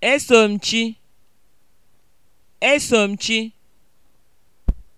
Eso chi. Eso chi.